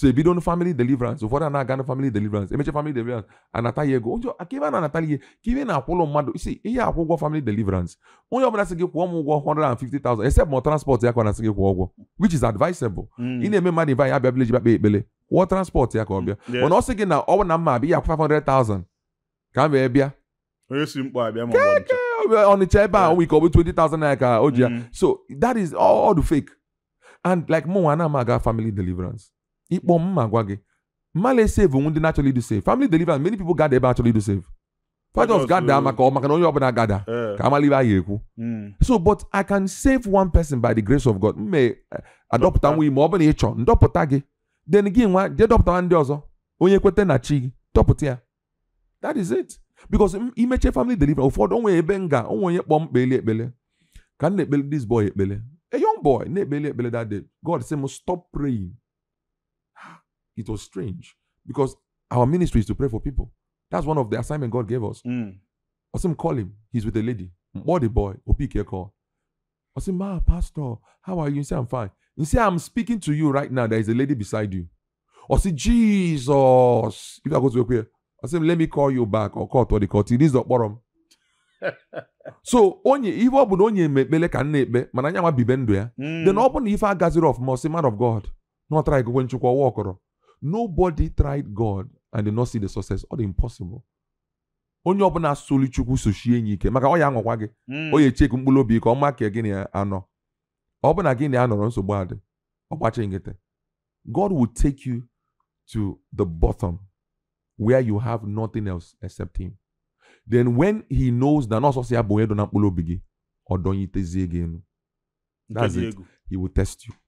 so ebido family deliverance ụfọdụ a na-aga na family deliverance emecha family deliverance anataghị ego onye aka ebe a na-anataghị ego ka ebe na-akwụlụ mmadụ isi ihe akwụ ụgwọ family deliverance onye ọbụla sị gị kwụọ m ụgwọ 150,000 except ma transport ya ka ọ na-asị gị kwụọ ụgwọ which is advisable ị mm. na-eme mmadụ ibe anyị abịa village bịa kpee ekpele kwụọ transport ya ka ọ bịa mana ọ sị gị na ọ bụ na mma abịa ya akwụ 500,000 ka m wee bịa onye si mkpọ abịa ma ọnịcha ebe a onwe ike ọ bụ 20,000 naira ka o ji ya mm. so that is all, all the fake and like mụ nwa na m aga family deliverance ịkpọ m ma gwa gị mmadụ e-save onwe ndị na-achọrọ idu save family deliverance many people gada ebe achọrọ idu save fathers gada eh. maka ọ maka na onye ọbụla gada eh. ka amalibe a ga-ekwu hmm. so but i can save one person by the grace of god mme eh, adọpụta nwa ime ọ bụla ịchọ ndọpụta gị then gị nwa jee dọpụta ndị ọzọ onye kweta na chi gị dọpụta ya that is it because imeche family deliverance ụfọdụ onwe ebe nga onwe onye kpọọ mkpeli ekpele ka m na-ekpele this boy ekpele a young boy na-ekpeli ekpele that day god sị m stop praying it was strange because our ministry is to pray for people. That's one of the assignment God gave us. Mm. Osim call him. He's with a lady. Body hmm. boy. your call. Osim, ma, pastor, how are you? You say, I'm fine. You say, I'm speaking to you right now. There is a lady beside you. I say, Jesus. If I go to your I say, let me call you back or call to the court. This is the bottom. so onye ihe ọ bụ onye mekpele ka m na-ekpe ya hmm. then ọ ifa na ife agaziri man of god n'ọtara ikekwe nchekwa ọwa ọkọrọ Nobody tried God and did not see the success or the impossible. onye ọbụla solu chukwu sochie enyi ike maka ọ ya anwakwa gị onye hmm. echeku mkpụrụ obi ka ọ maka gị na anọ ọ bụ na gị na ya nọrọ nsogbu adị ọgbachi nkịtị God will take you to the bottom where you have nothing else except him then when he knows na nọọsọsọ ya bụ onye dọ na mkpụrụ obi gị ọ dọnyitezie gị elu that's it he will test you